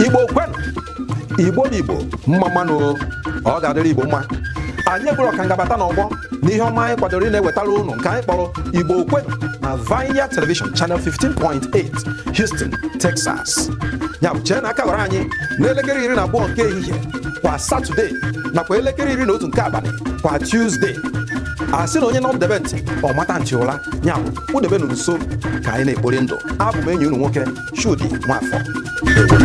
igbo kwen igbo na igbo mma mmanụ ọ ga-adịrị igbo mma anyị bụrụ ọka ngabata ọgbọ na ihe ọma anyị kwadoro na-ewetara nke anyị kpọrọ igbo okwenụ na Vineyard Television chanel 15.8 Houston, Texas ya bụ chee na aka gwara anyị n'elekere iri na abụọ nke ehihie kwa Satọde nakwa elekere iri na otu nke abalị kwa Tuesday a sị na onye nọdebe ntị ọ mata ntị ụra ya bụ kpụdebe nso ka anyị na-ekpori ndụ abụ m enyi unu nwoke Chudi Nwafọ